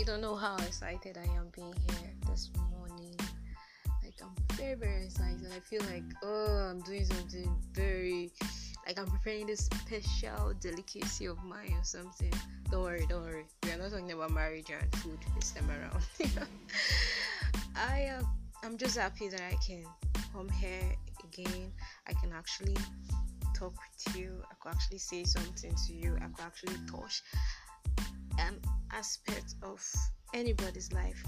You don't know how excited I am being here this morning. Like I'm very very excited. I feel like oh I'm doing something very like I'm preparing this special delicacy of mine or something. Don't worry, don't worry. We are not talking about marriage and food this time around. I am uh, I'm just happy that I can come here again. I can actually talk with you. I could actually say something to you. I could actually touch an um, aspect of anybody's life.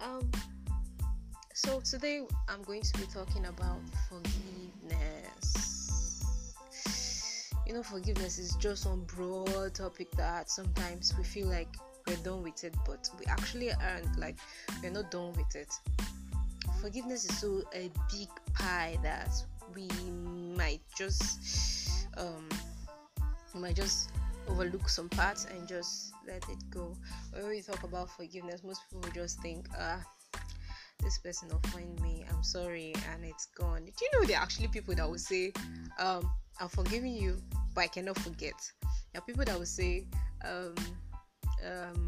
Um, so today I'm going to be talking about forgiveness. You know, forgiveness is just one broad topic that sometimes we feel like we're done with it, but we actually aren't. Like we're not done with it. Forgiveness is so a big pie that we might just um, might just overlook some parts and just let it go. When we talk about forgiveness, most people just think, ah, this person offended me, I'm sorry, and it's gone. Do you know there are actually people that will say, um, I'm forgiving you, but I cannot forget. There are people that will say, um, um,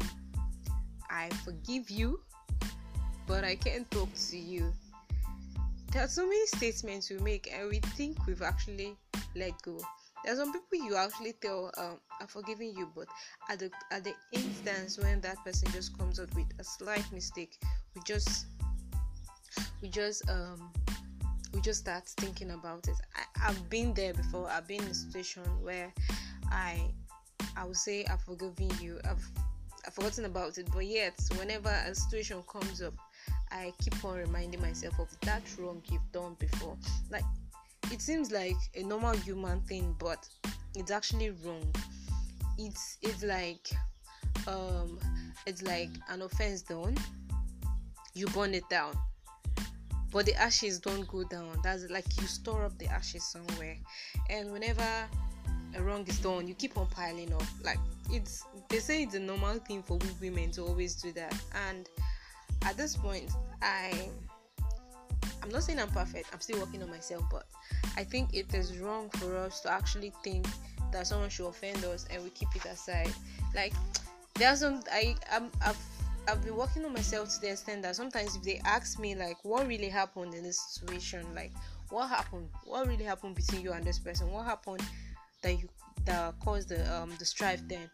I forgive you, but I can't talk to you. There are so many statements we make, and we think we've actually let go there are some people you actually tell um, i'm forgiving you but at the at the instance when that person just comes up with a slight mistake we just we just um we just start thinking about it I, i've been there before i've been in a situation where i i would say i've forgiven you i've I've forgotten about it, but yet, whenever a situation comes up, I keep on reminding myself of that wrong you've done before. Like, It seems like a normal human thing, but it's actually wrong. It's it's like um, it's like an offense done, you burn it down. But the ashes don't go down. That's like you store up the ashes somewhere. And whenever a wrong is done, you keep on piling up. Like it's they say it's a normal thing for women to always do that. And at this point, I I'm not saying I'm perfect. I'm still working on myself, but I think it is wrong for us to actually think that someone should offend us and we keep it aside. Like there are some I I'm, I've I've been working on myself to the extent that sometimes if they ask me like what really happened in this situation, like what happened, what really happened between you and this person, what happened that you that caused the um the strife then,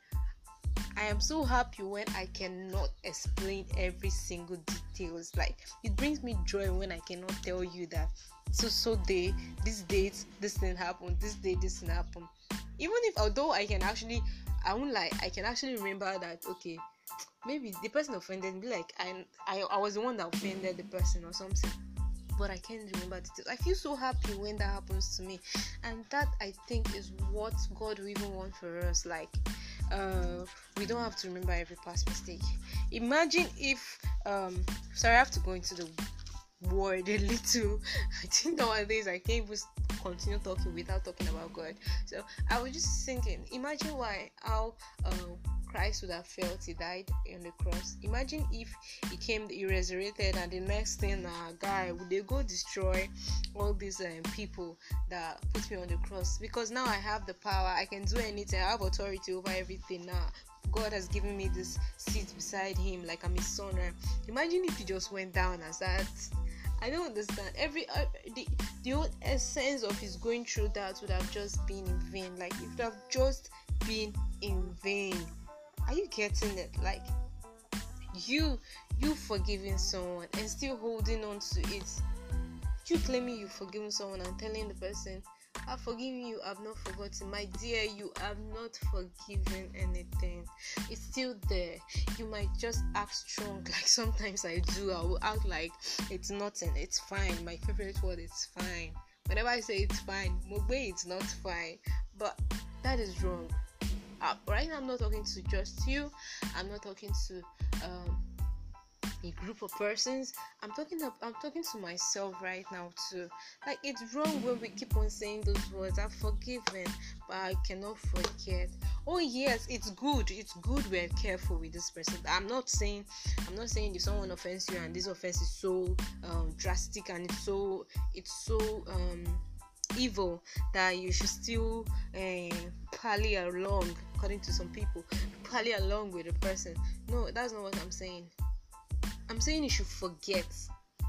I am so happy when I cannot explain every single details. Like it brings me joy when I cannot tell you that so so day, this date, this thing happened, this day, this thing happened. Even if although I can actually I won't lie, I can actually remember that okay, maybe the person offended me, like I I, I was the one that offended the person or something but I can't remember details. I feel so happy when that happens to me, and that I think is what God will even want for us. Like, uh, we don't have to remember every past mistake. Imagine if, um, sorry, I have to go into the word a little. I think nowadays I can't even continue talking without talking about God. So I was just thinking, imagine why how uh, Christ would have felt he died on the cross. Imagine if he came, he resurrected, and the next thing, uh, guy, would they go destroy all these um, people that put me on the cross? Because now I have the power, I can do anything, I have authority over everything now. God has given me this seat beside Him, like I'm His son. Imagine if He just went down as that. I don't understand. Every uh, the the whole essence of His going through that would have just been in vain. Like it would have just been in vain. Are you getting it? Like you you forgiving someone and still holding on to it. You claiming you forgiven someone and telling the person, I've forgiven you, I've not forgotten. My dear, you have not forgiven anything. It's still there. You might just act strong, like sometimes I do. I will act like it's nothing, it's fine. My favorite word is fine. Whenever I say it's fine, Mugbe, it's not fine. But that is wrong. Right now, I'm not talking to just you, I'm not talking to um, a group of persons. I'm talking to, I'm talking to myself right now too. Like it's wrong when we keep on saying those words. I'm forgiven, but I cannot forget. Oh yes, it's good. It's good we're careful with this person. I'm not saying I'm not saying if someone offends you and this offense is so um, drastic and it's so it's so um, evil that you should still uh, eh, parley along according to some people, probably along with the person. No, that's not what I'm saying. I'm saying you should forget,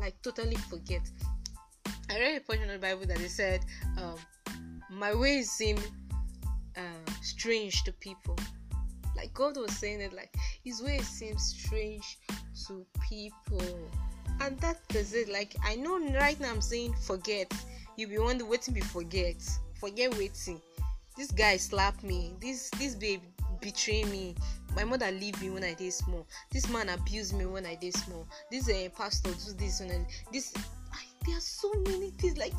like totally forget. I read a portion of the Bible that they said, um, "My ways seem uh, strange to people." Like God was saying it, like His ways seem strange to people, and that is it. Like I know right now, I'm saying forget. You be wondering waiting, be forget, forget waiting this guy slap me this this babe betray me my mother leave me when i dey small this man abuse me when i dey small this uh, pastor do this when i this I, there are so many things like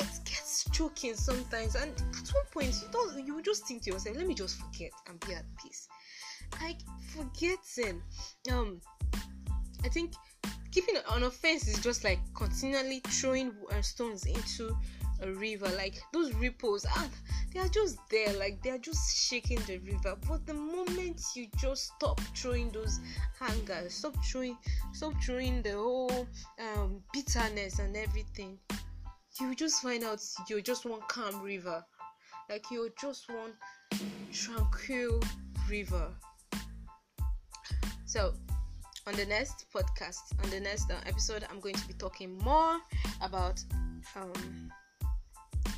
it gets choking sometimes and at one point you don't you just think to yourself let me just forget and be at peace like forgetting um i think keeping an offense is just like continually throwing uh, stones into a river like those ripples ah they are just there like they are just shaking the river but the moment you just stop throwing those hangers stop throwing stop throwing the whole um, bitterness and everything you just find out you're just one calm river like you're just one tranquil river so on the next podcast on the next uh, episode i'm going to be talking more about um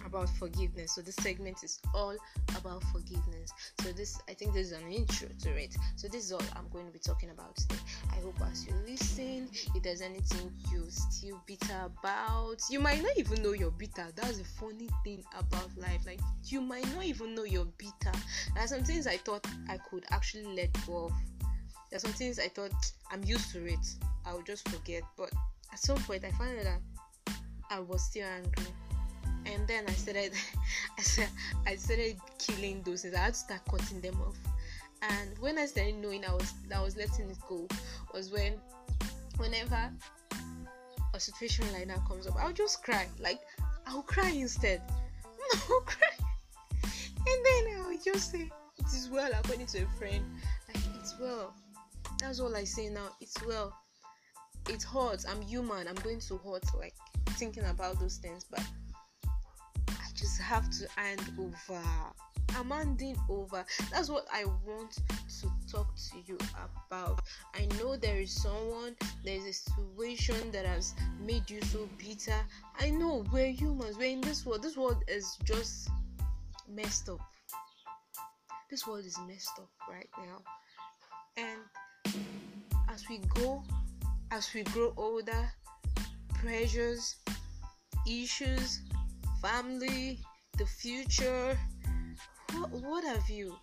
about forgiveness. So this segment is all about forgiveness. So this I think this is an intro to it. So this is all I'm going to be talking about today. I hope as you listen, if there's anything you're still bitter about, you might not even know you're bitter. That's the funny thing about life. Like you might not even know you're bitter. There are some things I thought I could actually let go of. There are some things I thought I'm used to it. I'll just forget. But at some point I found that I was still angry. and then I started, I said I started killing those things. I had to start cutting them off. And when I started knowing I was, I was letting it go, was when, whenever a situation like that comes up, I'll just cry. Like I'll cry instead. I'll cry, and then I'll just say, "It is well," according to a friend. Like it's well. That's all I say now. It's well. It hurts. I'm human. I'm going to hurt. Like thinking about those things, but just have to hand over. I'm handing over. That's what I want to talk to you about. I know there is someone, is a situation that has made you so bitter. I know we're humans, we're in this world. This world is just messed up. This world is messed up right now. And as we go, as we grow older, pressures, issues, family, the future, what, what have you?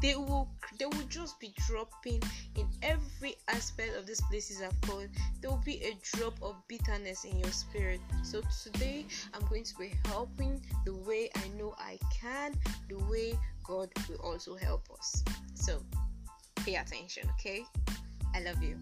They will they will just be dropping in every aspect of these places I've called. There will be a drop of bitterness in your spirit. So today I'm going to be helping the way I know I can, the way God will also help us. So pay attention, okay? I love you.